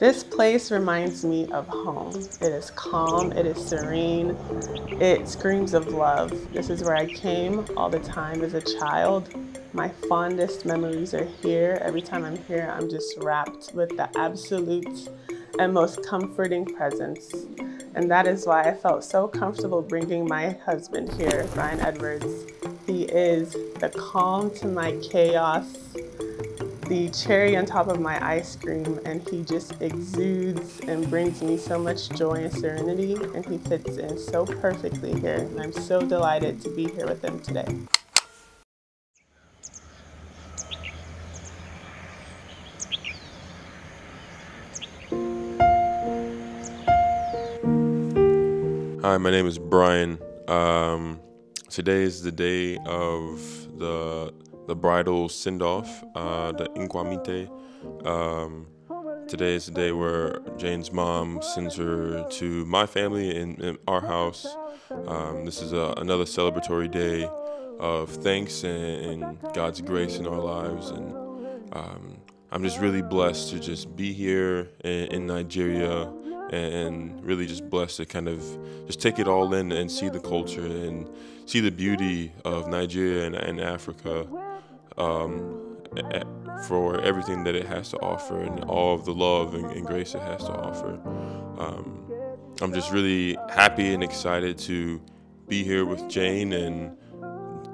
This place reminds me of home. It is calm, it is serene, it screams of love. This is where I came all the time as a child. My fondest memories are here. Every time I'm here, I'm just wrapped with the absolute and most comforting presence. And that is why I felt so comfortable bringing my husband here, Brian Edwards. He is the calm to my chaos the cherry on top of my ice cream and he just exudes and brings me so much joy and serenity and he fits in so perfectly here and I'm so delighted to be here with him today. Hi, my name is Brian. Um, today is the day of the the bridal send off, uh, the inquamite. Um, today is the day where Jane's mom sends her to my family in, in our house. Um, this is a, another celebratory day of thanks and, and, God's grace in our lives. And um, I'm just really blessed to just be here in, in Nigeria and really just blessed to kind of just take it all in and see the culture and see the beauty of Nigeria and, and Africa um, for everything that it has to offer and all of the love and, and grace it has to offer. Um, I'm just really happy and excited to be here with Jane and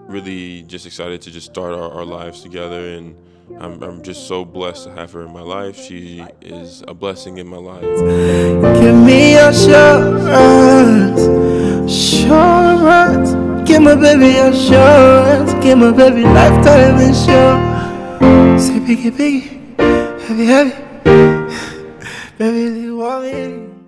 really just excited to just start our, our lives together and I'm, I'm, just so blessed to have her in my life. She is a blessing in my life. Give me assurance, assurance. Give my baby assurance. Give my baby lifetime insurance. Say, piggy, piggy, heavy, heavy, Baby, you want me?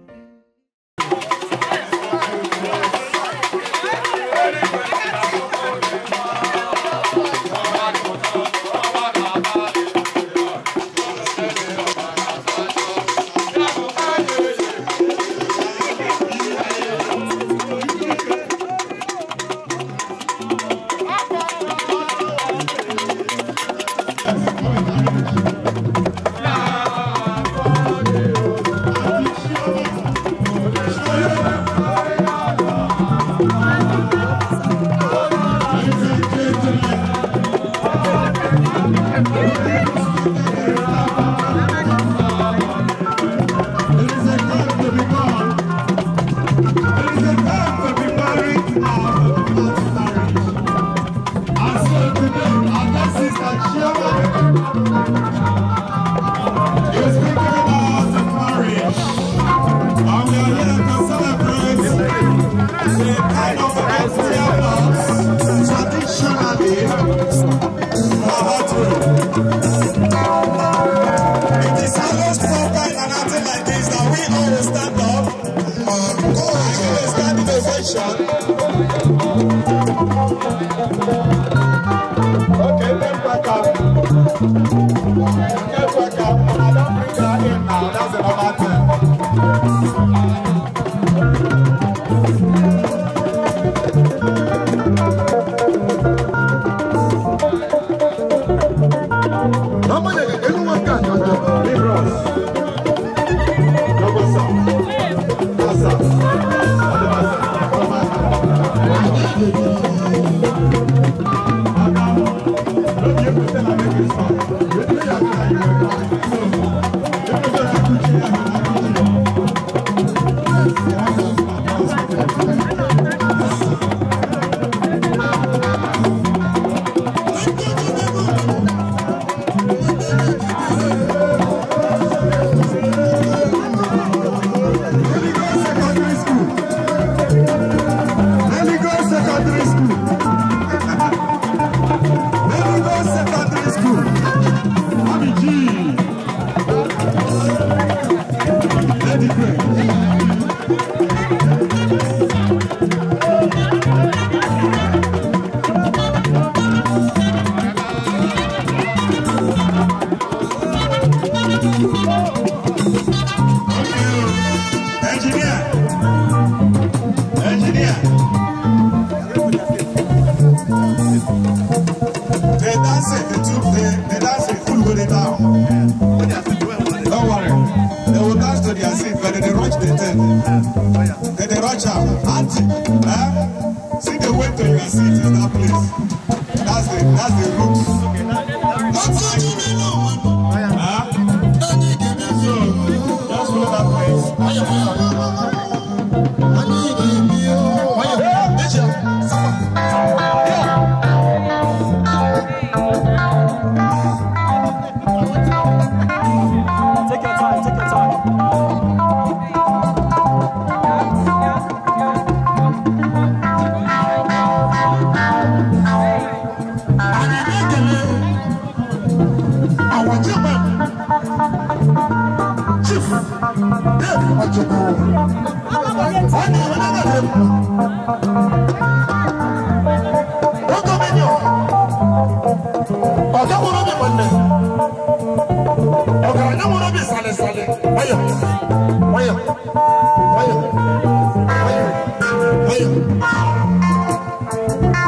Thank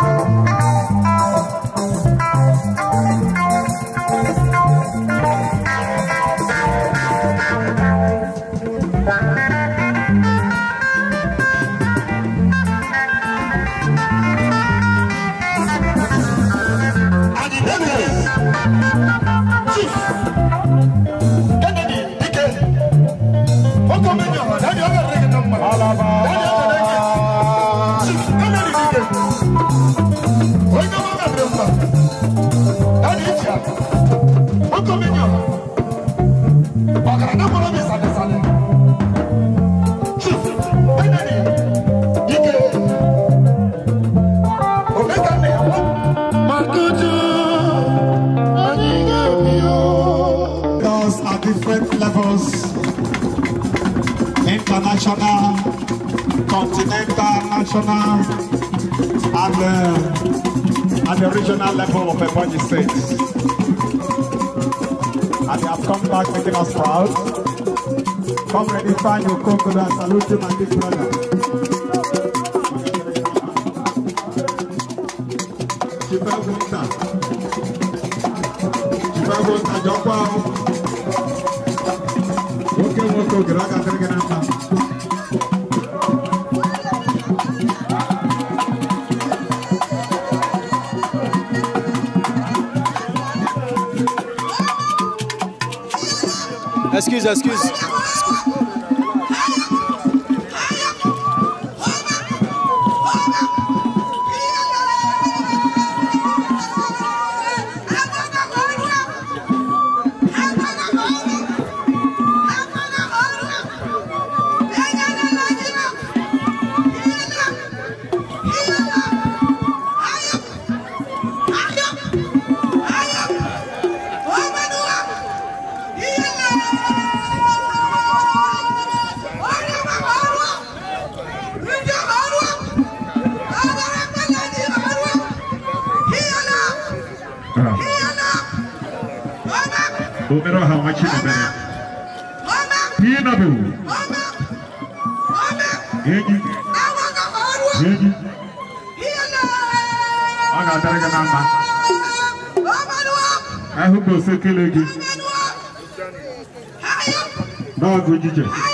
Thank you. national and uh, at the regional level of Ebonyi State. And they have come back making us proud. Come ready, find your and salute him and his brother. Excuse. Omero ha wachi na bere. Pi na bu. Eji. Eji. Aga dere ga na ma. Ahu ko se kele gi. Dog ujije. Ayo.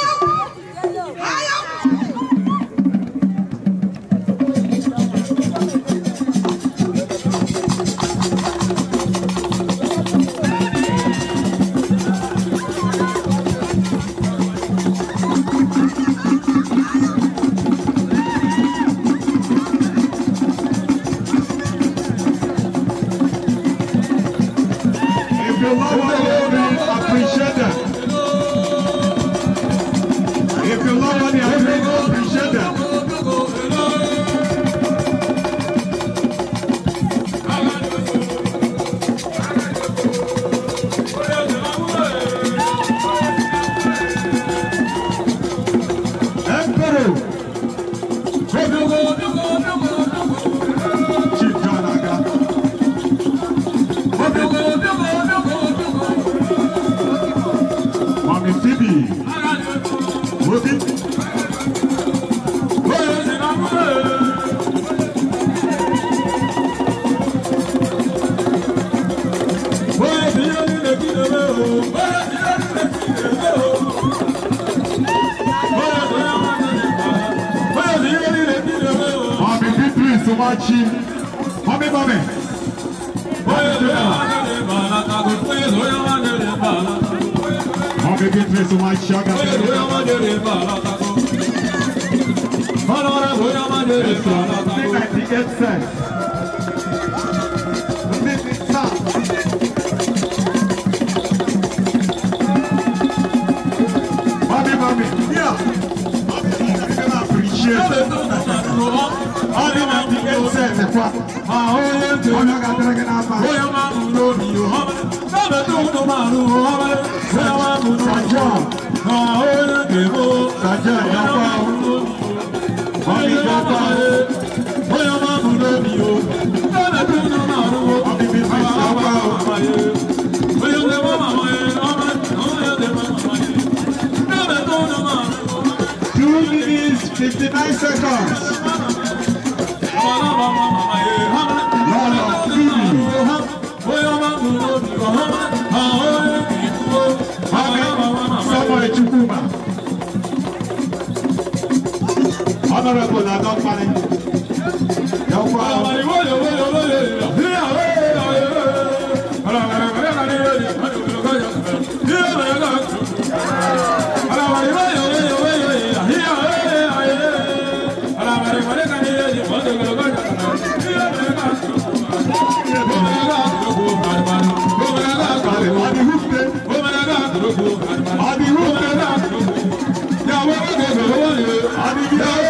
manjöre Mami mami, yeah. Ọdún máa ti ké sẹ̀ nípa. Màá ó yé tó. Ọdún ká tẹ́lẹ̀kẹ́ náà bá. Bóyá máa Ahora que vos, allá ya va. Ahí ya voy a mamulo mío. Dame tu nomaro, a mi mi Voy a de mamá mayo, voy a de mamá mayo. Dame tu nomaro. Two minutes, 59 seconds. honorable adult management. Abi who? Abi who?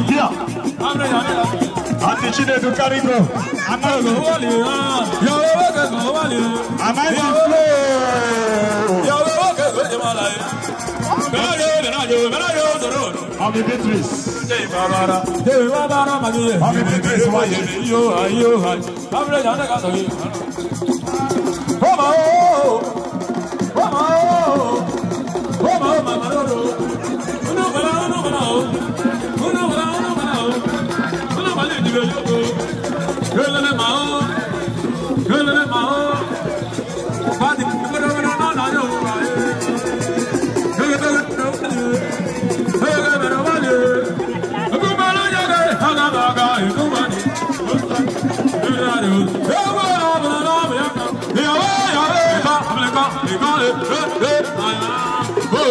láti Chinedu Karigo. Àmàlò wà lè rán. Yọ̀wọ́ owó kẹsàn-án wà lè rán. Àmàlò flow. Yọ̀wọ́ owó kẹsàn-án ti máa láyé. Mẹ́láyò mẹ́láyò mẹ́láyò sọ̀rọ̀. Ọmọ Beatrice. Ṣé ìbára? Ṣé ìbára màá yẹ? Ọmọ Beatrice Why you? Why you? Why Bábúlé ìjà ń tẹ̀ka sọ̀rọ̀ yìí. Bọ́mọ̀ ooo. Bọ́mọ̀ ooo. Bọ́mọ̀ ooo màmá lóró. Inú bẹ̀rẹ̀ inú bẹ̀rẹ̀ ooo. Hey, hey, hey, hey, hey, hey, hey, hey,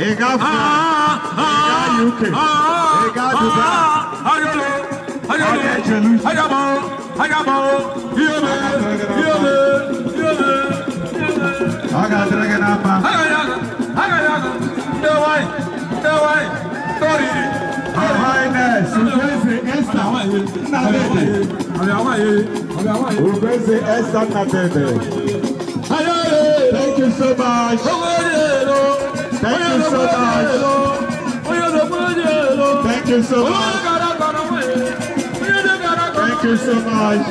He got France. He got UK. He got Ayabo. Ayabo. Yome. Yome. Yome. Aga drag it up. Aga yago. Aga yago. No way. No way. Sorry. Thank you so much. Thank you so much. Thank you so much. Thank you so much.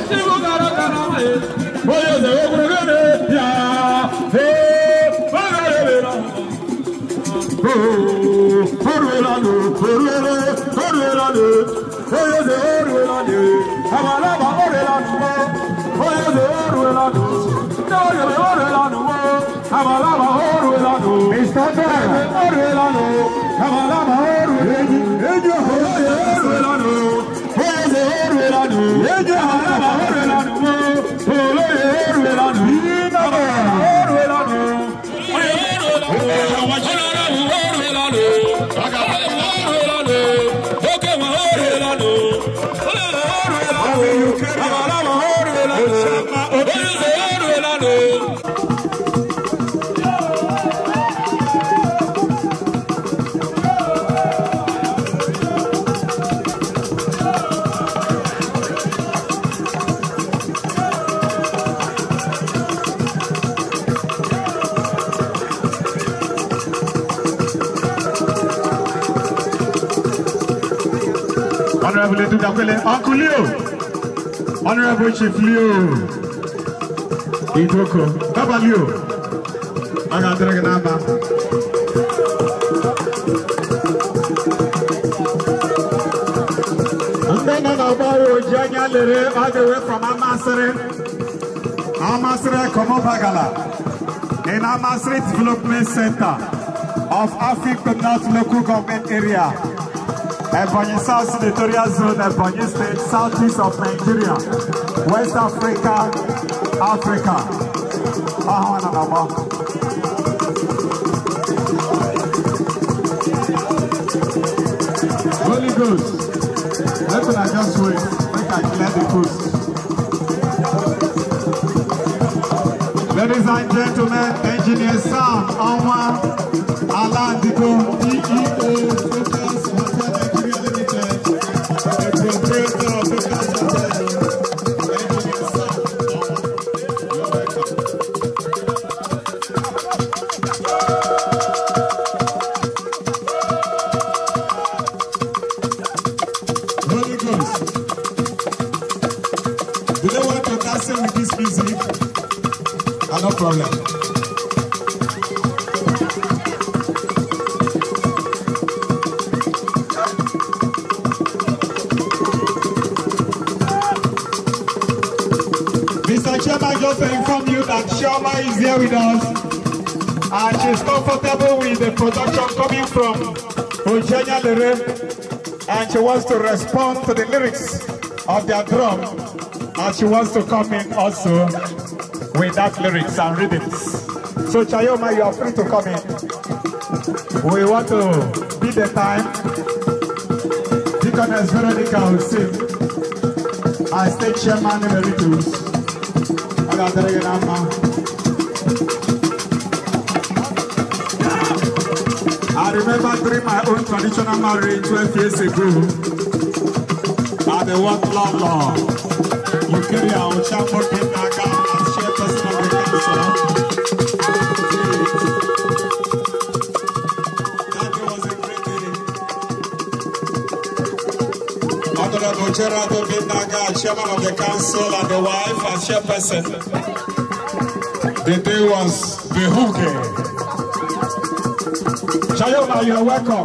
I'm a lover. ìsọ́tọ̀ òrùlé lánà o làbàlàbà òrùlé ní ejò òrùlé lánà o òrùlé òrùlé lánà o ejò àlàbà òrùlé. Honorable Edudakwele, Uncle Leo, Honorable Chief Leo, Idoko, Baba Leo, Agadreganaba. Janya Lere, all the way from Amasere. Amasere Komobagala. In Amasere Development Center of Africa North Local Government Area. Ebonyi South Senatorial Zone, Ebonyi State, southeast of Nigeria, West Africa, Africa. Holy Ghost, let me just wait, make I clear the coast. Ladies and gentlemen, engineer Sam Alma Alandigo, DEA, was comfortable with the production coming from Eugenia Lere and she wants to respond to the lyrics of their drum and she wants to come in also with that lyrics and rhythms. So Chayoma, you are free to come in. We want to beat the time. Deaconess Veronica will sing. I state chairman Emeritus. I got the man. I remember during my own traditional marriage 12 years ago. I the one law law. You carry out chapel in Naga and share personal reconciliation. That was a great day. Honorable Gerardo Binaga, chairman of the council and the wife and chairperson. The day was the hooker. Shayoma, you're welcome.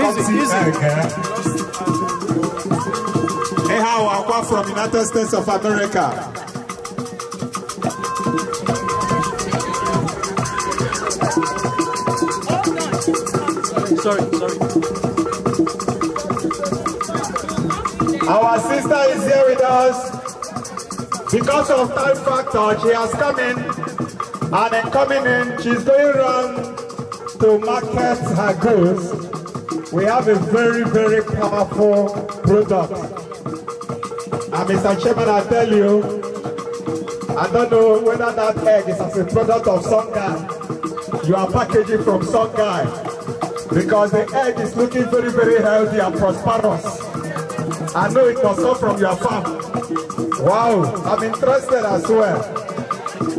Easy, easy. Eh? Hey, how Aqua from United States of America. Sorry, sorry. Our sister is here with us. Because of time factor, she has come in. And then coming in, she's going around to market her goods, we have a very, very powerful product. And Mr. Chairman, I tell you, I don't know whether that egg is as a product of some guy. You are packaging from some guy because the egg is looking very, very healthy and prosperous. I know it was not from your farm. Wow, I'm interested as well.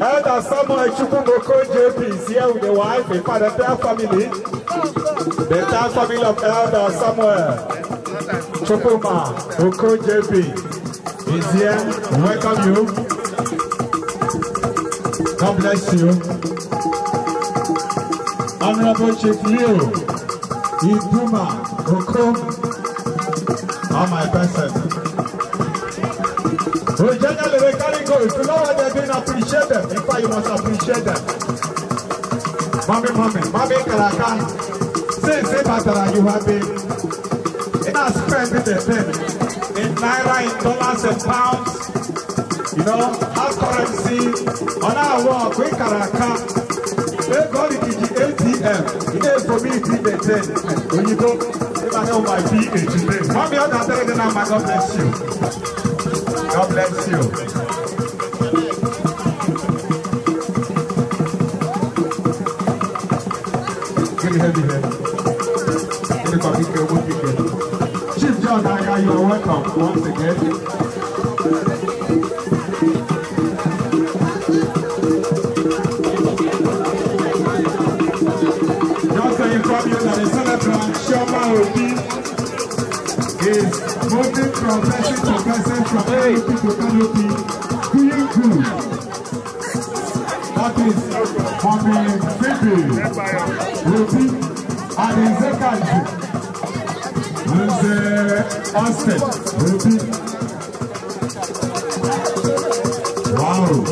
Elder Samuel Chukwuboko JP is here with the wife, a part their family. The entire family of Elder Samuel Chukwuma Oko JP is here. welcome you. God bless you. Honorable Chief Leo Iduma Oko, on my best final they go. If you know what they're doing, appreciate them. In fact, you must appreciate them. Mommy, mommy, mommy, Karaka. Say, say, Batara, you have been. In our spend with the pen. In naira, in dollars, and pounds. You know, our currency. On our work, we Karaka. They got it the ATM. It is for me, to be the 10. When you go, if I know my PA today. Mommy, I'm not telling them, God bless you. God bless you. heavy head. Chief John Aga, you are welcome once again. progressing, progressing from hey. canopy to canopy, doing good. That is on the Bibi, Ruby, and in second, and the Austin, Ruby.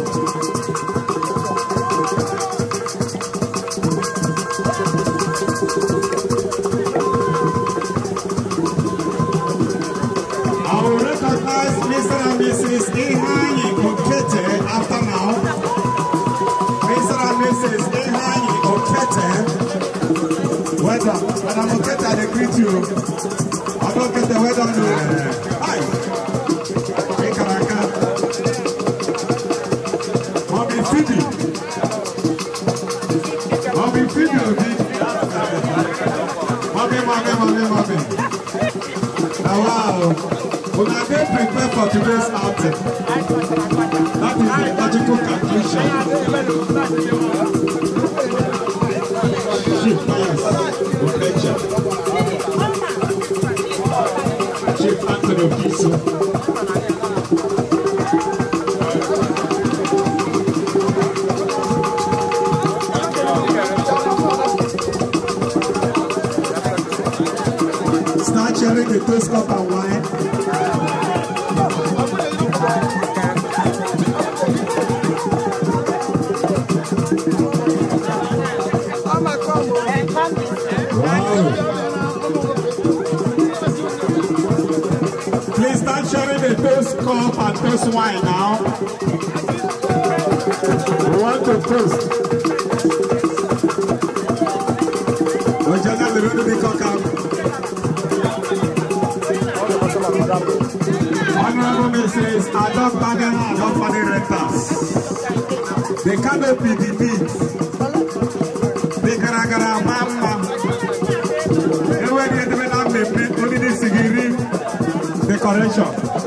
Wow. We are being prepared for today's outing. That is the magical conclusion. that wine now. We want to toast. Ojana the road be cock up. Honorable Mrs. Adolf Baden and Adolf Baden Rectors. The canopy, the meat, the garagara, mama. Everywhere they develop the meat, only the sigiri, the correction.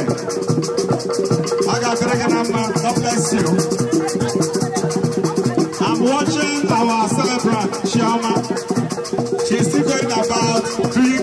Do you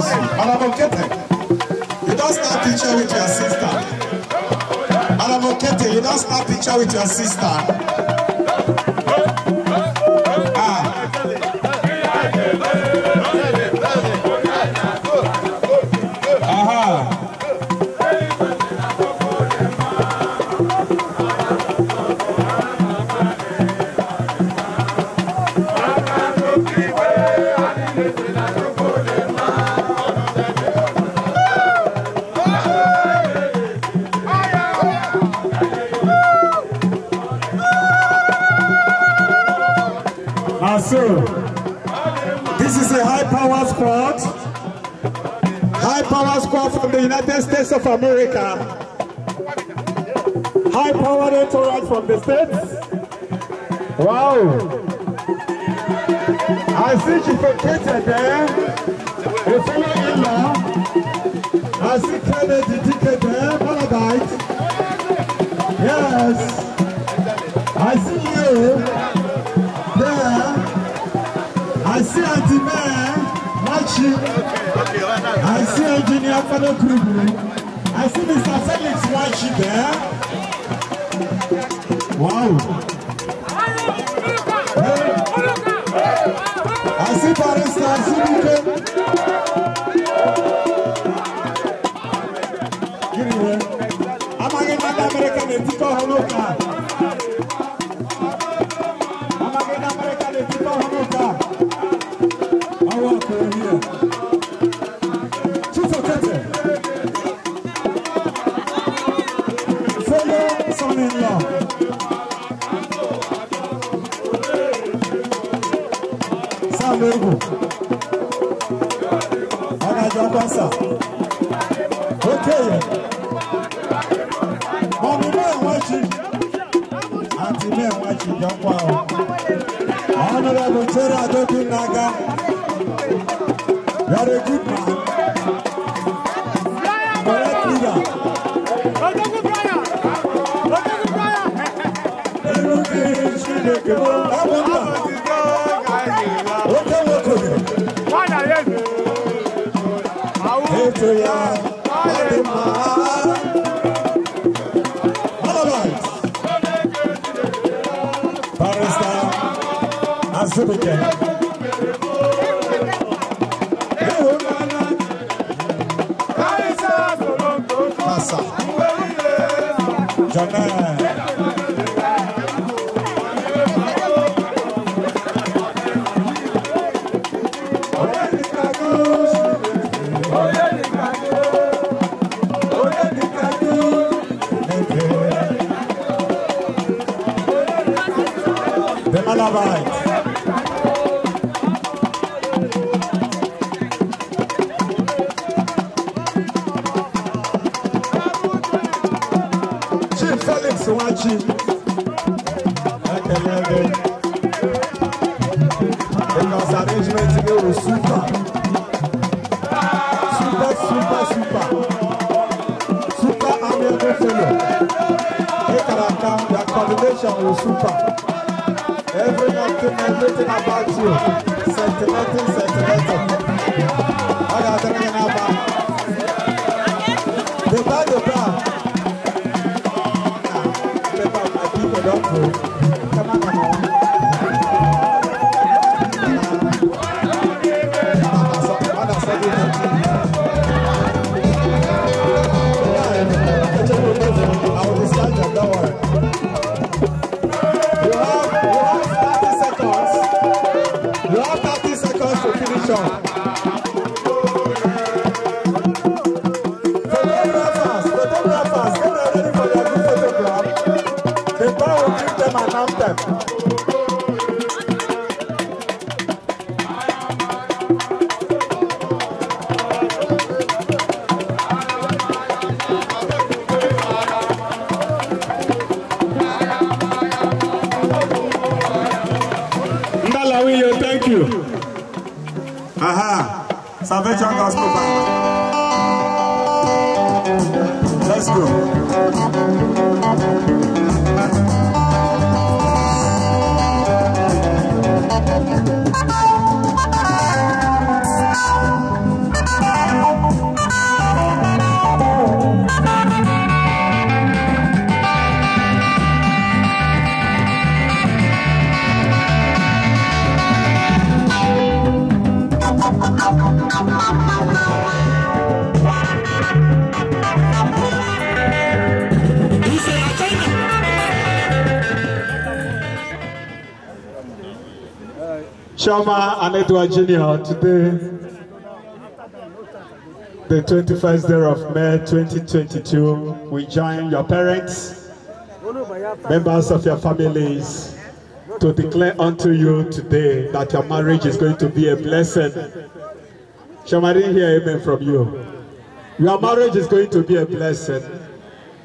Mercy, Honorable Kete, you don't snap picture with your sister. Honorable Kete, you don't snap picture with your sister. America. High powered entourage from the States. Wow. I see she vacated there. The fellow in law. I see Kennedy DK there. Paradise. Yes. I see you there. I see Auntie Mare. Machi. I see Engineer Fado Kubu. I see Mr. Felix Wachi there. Wow. I see Barista, I see náà lóògùn ọ̀nàjọ pásà ó kéye mọ̀mí mẹ́wàá jì àti mẹ́wàá jì jọ pa ọ́ honorable Cherry Adodun Naga you are a good man Azubike. Jangan Anedwa Jr. today, the 21st day of May 2022, we join your parents, members of your families, to declare unto you today that your marriage is going to be a blessing. Shall I hear amen from you? Your marriage is going to be a blessing.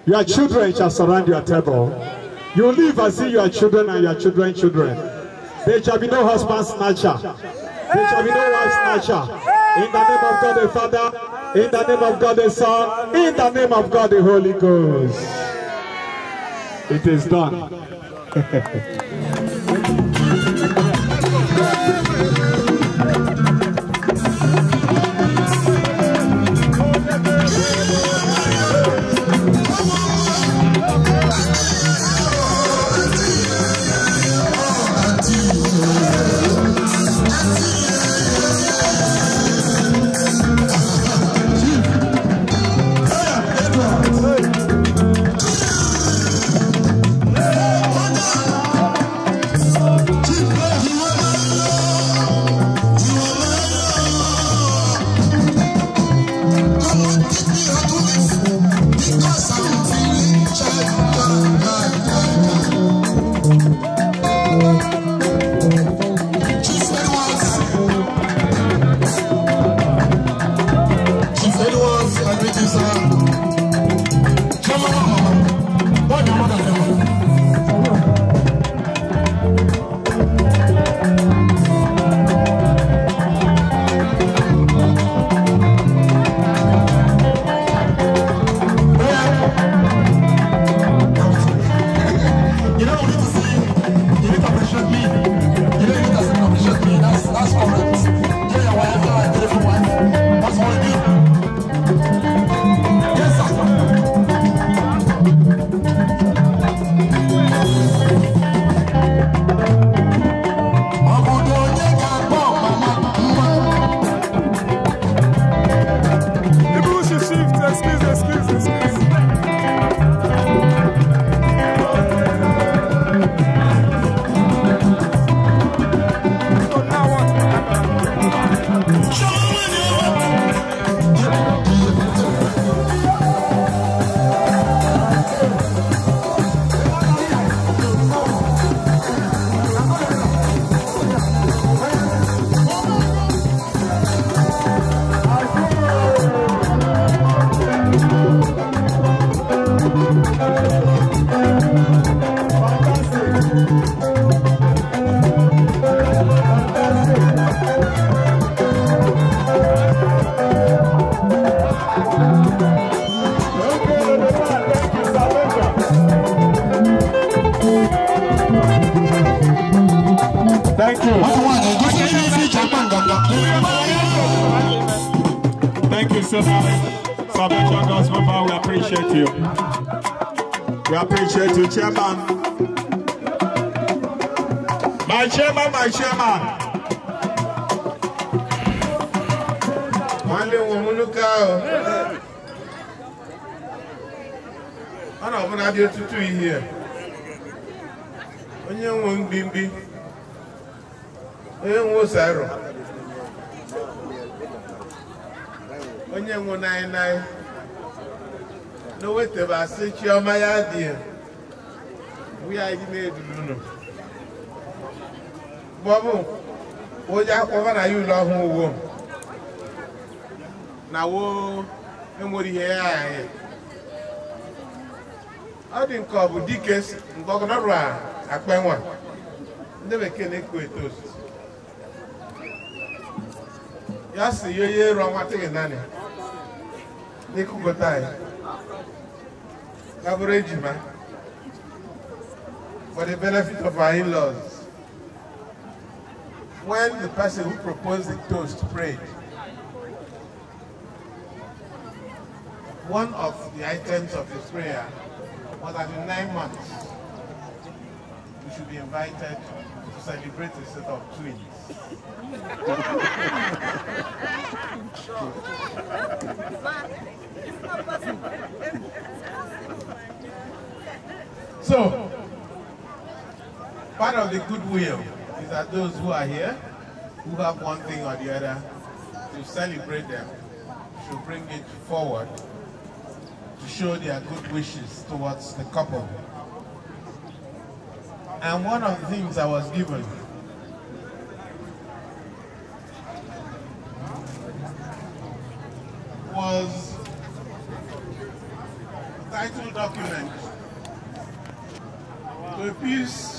Your children shall surround your table. You live as if you are children and your children children. There shall be no husband snatcher. There shall be no wife snatcher. In the name of God the Father, in the name of God the Son, in the name of God the Holy Ghost. It is done. chairman. My chairman, my chairman. Nwanne nwe m nnukwu ahụ. Ọ na ọbụla dị ọtụtụ ihe. Onye nwe mgbimgbi. Onye nwe ụsarọ. Onye nwe naị naị. na o wetebasị chiọma ya dị ya. anyị na-eduru unu bọbụ onye akpọba na ya ụlọ ọhụụ uwo na woo enwere ihe ya anyị ọ dị nke ọ bụ dike ndọgọdọrụ a akpenwa ndị bekee na-ekwu eto ya si ya onye ero nwatịghị naanị n'ịkụkọta anyị ya bụrụ ejima for the benefit of our in-laws. When the person who proposed the toast prayed, one of the items of his prayer was that in nine months, we should be invited to celebrate the set of twins. so, Part of the goodwill is that those who are here, who have one thing or the other, to celebrate them, should bring it forward to show their good wishes towards the couple. And one of the things I was given was title document to a piece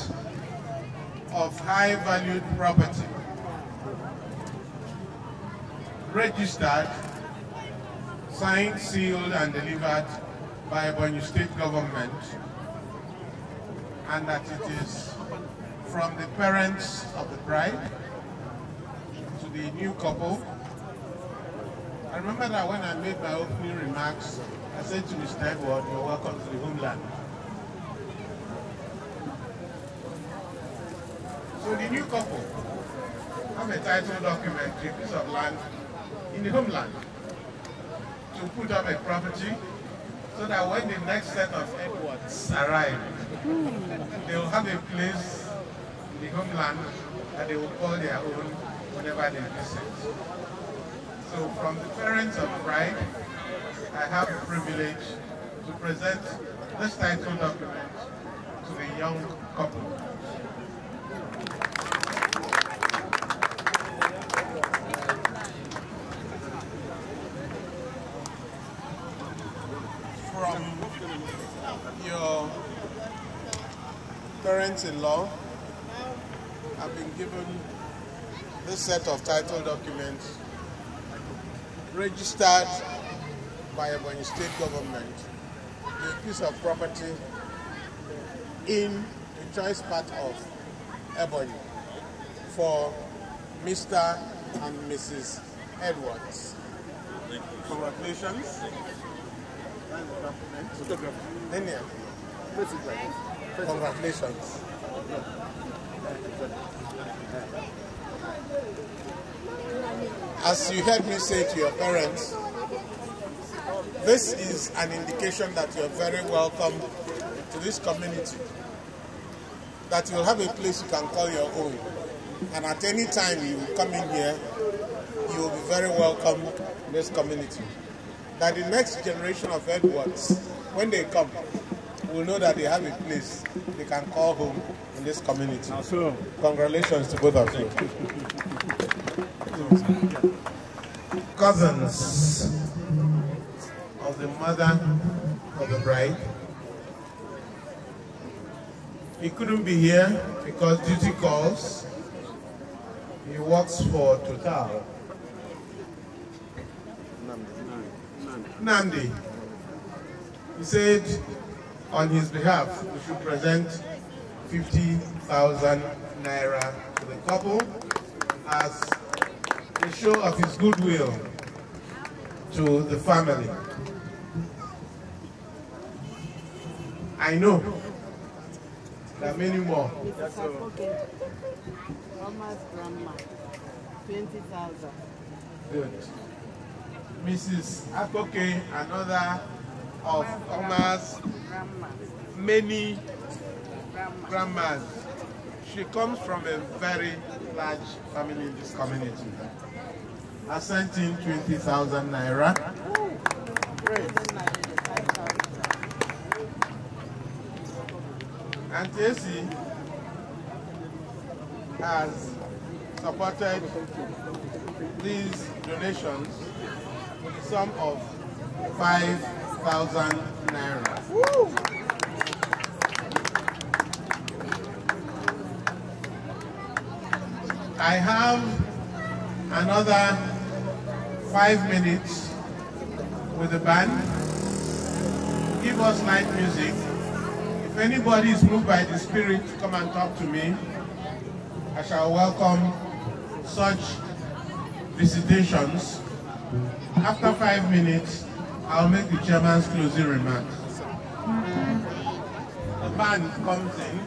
high-valued property registered, signed, sealed, and delivered by Borneo State Government and that it is from the parents of the bride to the new couple. I remember that when I made my opening remarks, I said to Mr. Edward, you're welcome to the homeland. So the new couple have a title document to a piece of land in the homeland to put up a property so that when the next set of Edwards arrive, they will have a place in the homeland that they will call their own whenever they visit. So from the parents of bride, I have the privilege to present this title document to the young couple. Parents in Law, I've been given this set of title documents registered by Ebony State Government a piece of property in the choice part of Ebony for Mr. and Mrs. Edwards. Congratulations. Photograph. Photograph. Congratulations. As you heard me say to your parents, this is an indication that you're very welcome to this community, that you'll have a place you can call your own. And at any time you come in here, you will be very welcome in this community. That the next generation of Edwards, when they come, will know that they have a place they can call home in this community. So, Congratulations to both of you. Cousins of the mother of the bride. He couldn't be here because duty calls. He works for Total. Nandi. Nandi. He said on his behalf, we should present 50,000 naira to the couple as a show of his goodwill to the family. I know there are many more. That's grandma, 20,000. Good. Mrs. Akoké, another of Omar's many grandmas. She comes from a very large family in this community. I sent in 20,000 naira. and Esi has supported these donations with the sum of five 5,000 naira. Woo. I have another five minutes with the band. Give us light music. If anybody is moved by the Spirit, come and talk to me. I shall welcome such visitations. After five minutes, I'll make the chairman's closing remarks. The man comes in.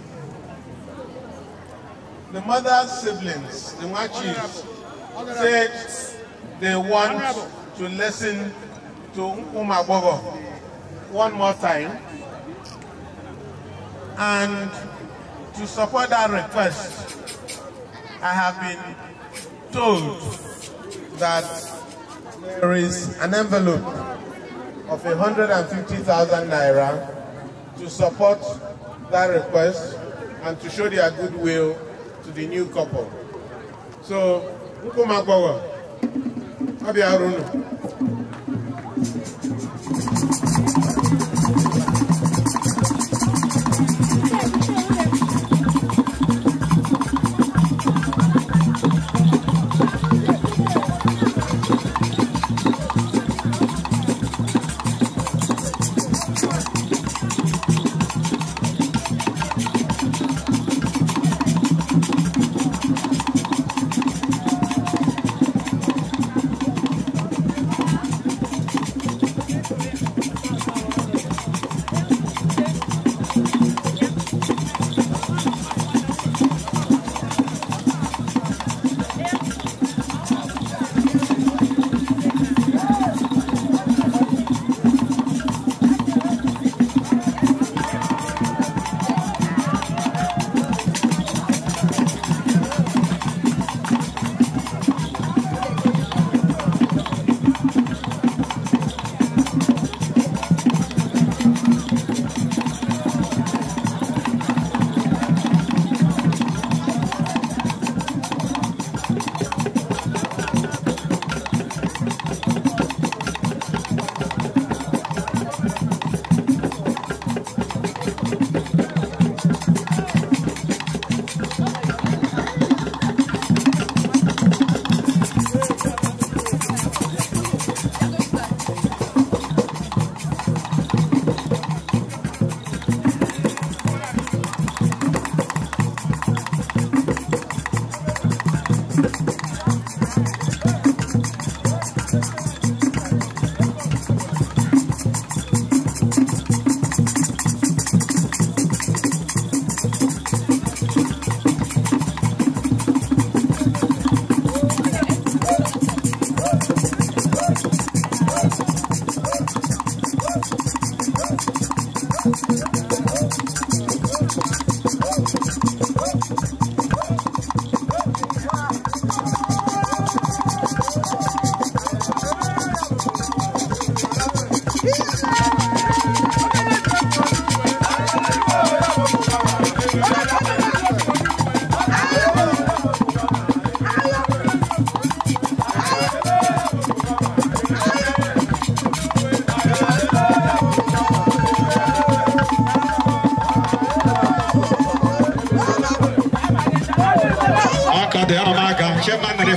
The mother's siblings, the Machis, said they want to listen to Umabogo one more time and to support that request I have been told that there is an envelope of 150,000 naira to support that request and to show their goodwill to the new couple. So, Nkumagbawa, Abiarunu. Thank you.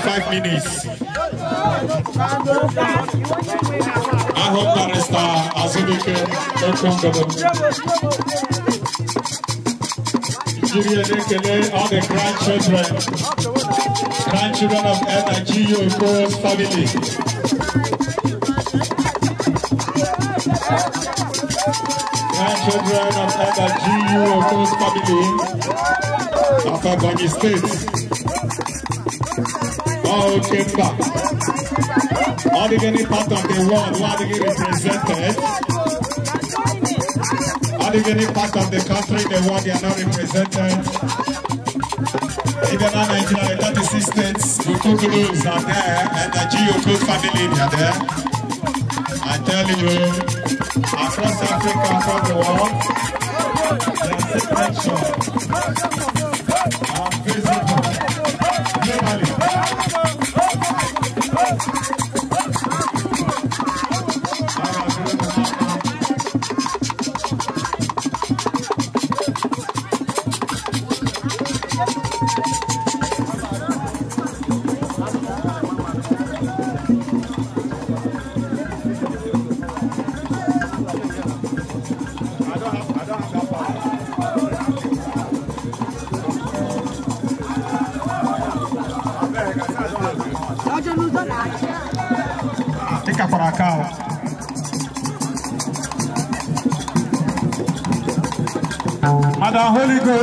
five minutes. I hope that Barrister Azubike them. Give you an all the grandchildren, grandchildren of Energy Oko's family. Grandchildren of Energy Oko's family of Ebony State. all chamber. All the any part of the world where they represented. All the any part of the country the world they are not represented. Even in Nigeria, the 36 states, Bukukulus are there, and the Geoku family they are there. I tell you, across Africa, across the world, they are separate.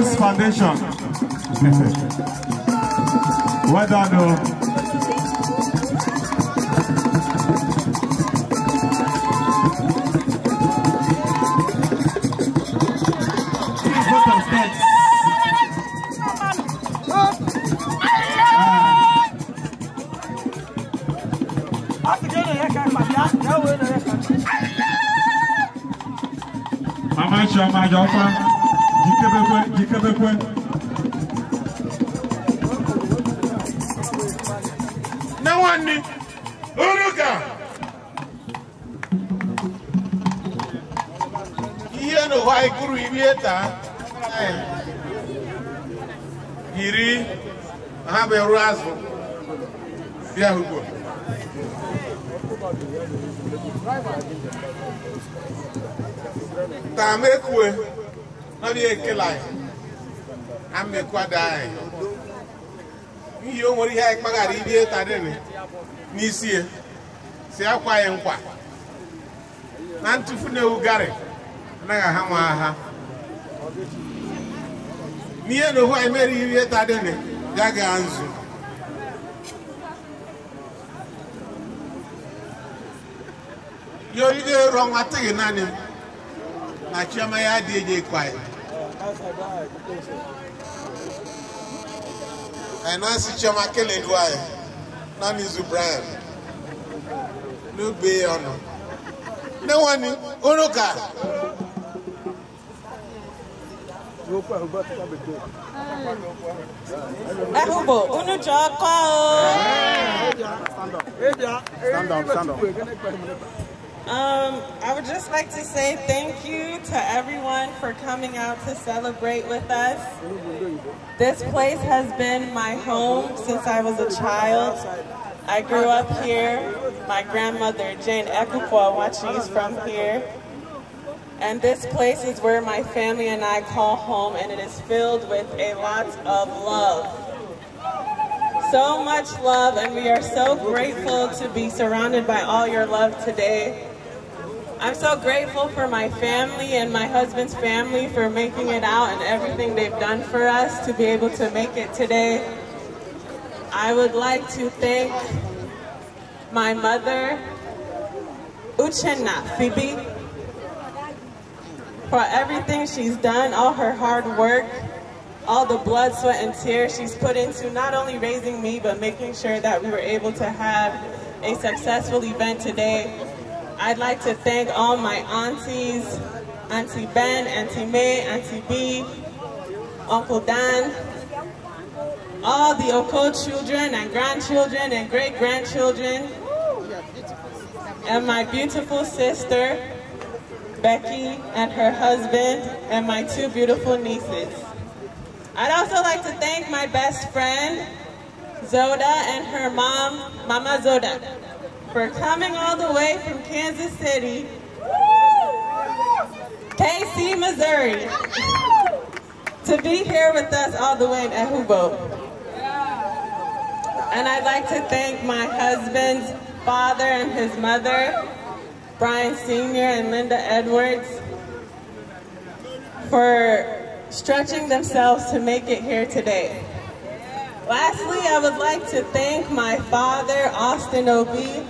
Grace Foundation. well done, though. Mama Choma, your father. Bekwe, Jike Bekwe. Nawani, Uruka. Iye no wa ikuru ibieta. Eh. Iri, habe razo. Bia hugo. Tamekwe. nọrọ ya ekele anyị ha mmekwado anyị ihe o nwere ihe anyị kpaghara ịta tadịrị n'isi ya si akwa anyị nkwa na ntụfu na ewu gari anaghị aha nwa agha n'ihe na ohu anyị mere ịta tadịrị ya gaa nzu yoride rọ nwa gị naanị na chioma ya adịghị ekwe anyị Nancy Chioma Kelelu anyị na Nizu Brian n'ugbe ọnụ. Nne nwanne ụnụ ka. Ehugbo unu ji ọkọ o. Stand up, stand up. Um, I would just like to say thank you to everyone for coming out to celebrate with us. This place has been my home since I was a child. I grew up here. My grandmother, Jane Ekukwa, watches from here. And this place is where my family and I call home, and it is filled with a lot of love so much love and we are so grateful to be surrounded by all your love today. I'm so grateful for my family and my husband's family for making it out and everything they've done for us to be able to make it today. I would like to thank my mother, Uchenna Phoebe, for everything she's done, all her hard work, all the blood, sweat, and tears she's put into not only raising me, but making sure that we were able to have a successful event today I'd like to thank all my aunties, Auntie Ben, Auntie May, Auntie B, Uncle Dan, all the Oko children and grandchildren and great-grandchildren, and my beautiful sister, Becky, and her husband, and my two beautiful nieces. I'd also like to thank my best friend, Zoda, and her mom, Mama Zoda for coming all the way from Kansas City, KC, Missouri, to be here with us all the way in Ehubo, And I'd like to thank my husband's father and his mother, Brian Sr. and Linda Edwards, for stretching themselves to make it here today. Lastly, I would like to thank my father, Austin Obie,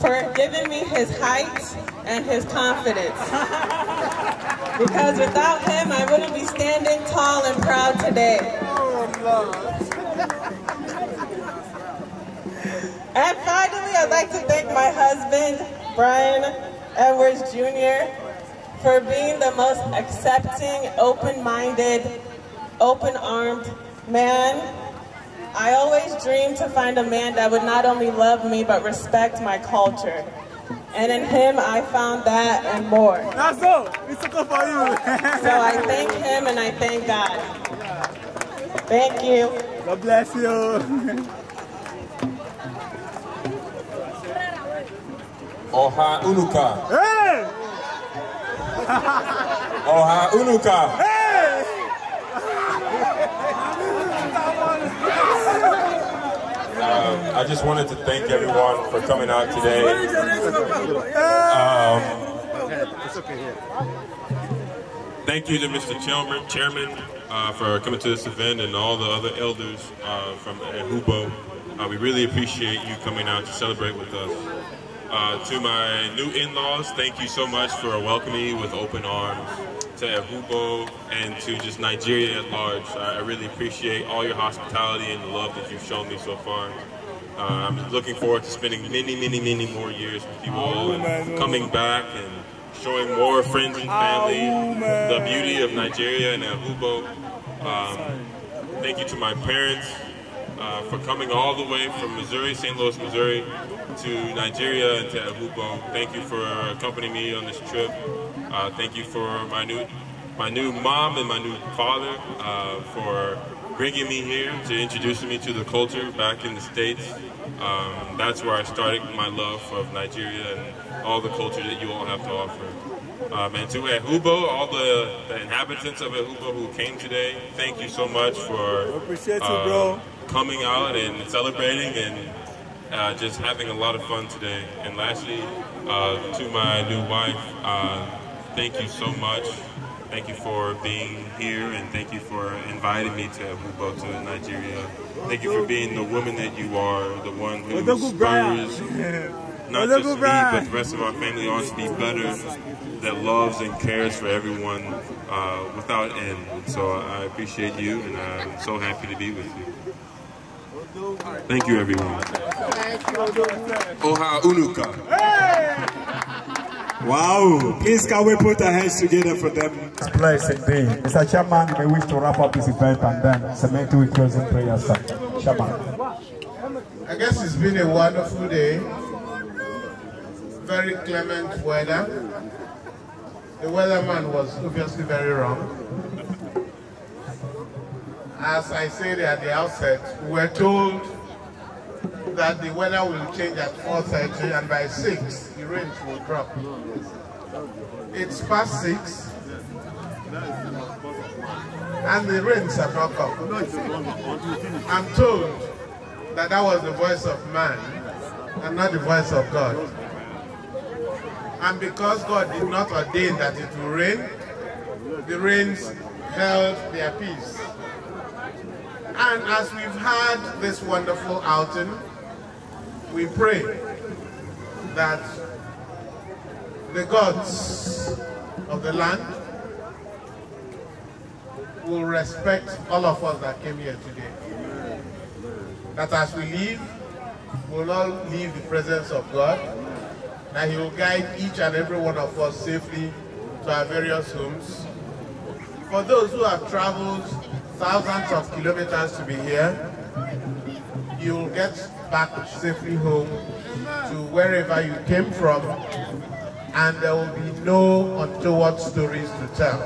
for giving me his height and his confidence. Because without him, I wouldn't be standing tall and proud today. And finally, I'd like to thank my husband, Brian Edwards Jr., for being the most accepting, open-minded, open-armed man I always dreamed to find a man that would not only love me, but respect my culture. And in him, I found that and more. That's all. It's okay for you. so I thank him and I thank God. Thank you. God bless you. Oha Unuka. Hey! Oha Unuka. Hey! Um, I just wanted to thank everyone for coming out today. Um, thank you to Mr. Chairman, Chairman uh, for coming to this event and all the other elders uh, from Hubo. Uh, we really appreciate you coming out to celebrate with us. Uh, to my new in-laws, thank you so much for welcoming me with open arms to Ahubo, and to just Nigeria at large. I, really appreciate all your hospitality and the love that you've shown me so far. Uh, I'm looking forward to spending many, many, many more years with you all and coming back and showing more friends and family the beauty of Nigeria and Ahubo. Um, thank you to my parents uh, for coming all the way from Missouri, St. Louis, Missouri, to Nigeria and to Ahubo. Thank you for accompanying me on this trip. Uh, thank you for my new, my new mom and my new father uh, for bringing me here to introducing me to the culture back in the States. Um, that's where I started my love of Nigeria and all the culture that you all have to offer. Um, and to Ehubo, all the, the, inhabitants of Ehubo who came today, thank you so much for uh, coming out and celebrating and uh, just having a lot of fun today. And lastly, uh, to my new wife, uh, thank you so much. Thank you for being here and thank you for inviting me to Abubo to Nigeria. Thank you for being the woman that you are, the one who spurs not just me, but the rest of our family on to be better, that loves and cares for everyone uh, without end. So I appreciate you and I'm so happy to be with you. Thank you, everyone. Thank you. Oha Unuka. Hey! Wow. Please can we put our hands together for them? It's a blessed indeed. Mr. Chairman, we wish to wrap up this event and then cement with closing prayers, sir. Chairman. I guess it's been a wonderful day. Very clement weather. The weatherman was obviously very wrong. As I said at the outset, we were told that the weather will change at 4.30 and by 6 the rain will drop. It's past 6 and the rains have not come. I'm told that that was the voice of man and not the voice of God. And because God did not ordain that it will rain, the rains held their peace. And as we've had this wonderful outing, we pray that the gods of the land will respect all of us that came here today. That as we leave, we will all leave the presence of God, that He will guide each and every one of us safely to our various homes. For those who have traveled thousands of kilometers to be here, you will get back safely home to wherever you came from, and there will be no untoward stories to tell.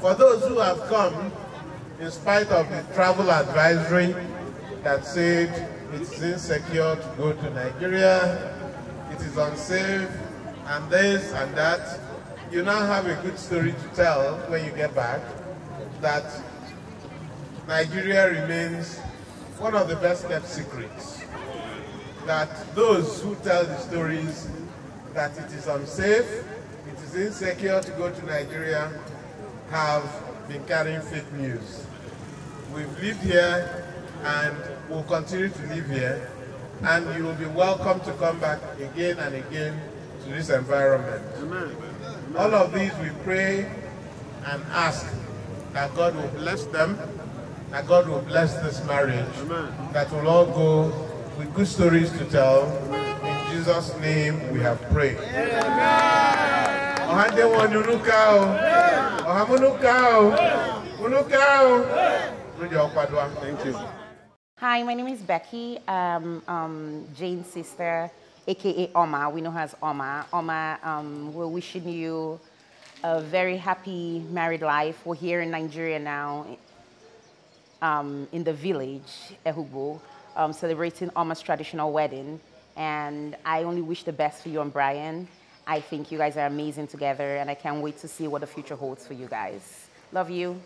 For those who have come, in spite of the travel advisory that said it's insecure to go to Nigeria, it is unsafe, and this and that, you now have a good story to tell when you get back that Nigeria remains one of the best kept secrets that those who tell the stories that it is unsafe, it is insecure to go to Nigeria have been carrying fake news. We've lived here and will continue to live here and you will be welcome to come back again and again to this environment. All of these we pray and ask that God will bless them that God will bless this marriage, Amen. that will all go with good stories to tell. In Jesus' name we have prayed. Ohande wanunukao. Thank you. Hi, my name is Becky, um, um, Jane's sister, aka Oma. We know her as Oma. Oma, um, we're wishing you a very happy married life. We're here in Nigeria now, um, in the village, Ehubu, um, celebrating Alma's traditional wedding. And I only wish the best for you and Brian. I think you guys are amazing together, and I can't wait to see what the future holds for you guys. Love you.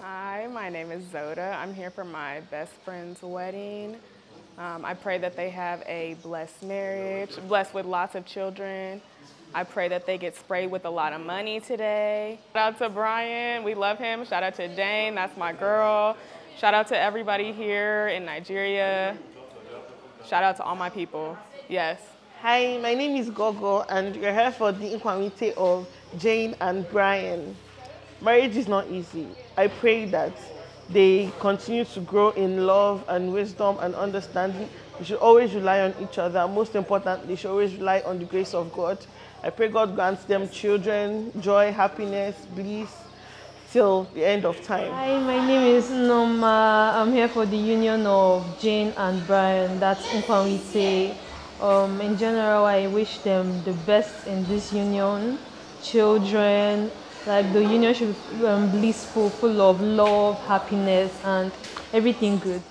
Hi, my name is Zoda. I'm here for my best friend's wedding. Um, I pray that they have a blessed marriage, blessed with lots of children, I pray that they get sprayed with a lot of money today. Shout out to Brian, we love him. Shout out to Jane, that's my girl. Shout out to everybody here in Nigeria. Shout out to all my people, yes. Hi, my name is Gogo and we are here for the inquiry of Jane and Brian. Marriage is not easy. I pray that they continue to grow in love and wisdom and understanding. We should always rely on each other. Most importantly, we should always rely on the grace of God. I pray God grants them children, joy, happiness, bliss till the end of time. Hi, my name is Noma. I'm here for the union of Jane and Brian. That's Nkwamite. Um, in general, I wish them the best in this union. Children, like the union should be um, blissful, full of love, happiness, and everything good.